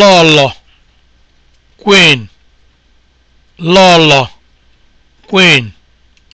lọlọ queen lọlọ queen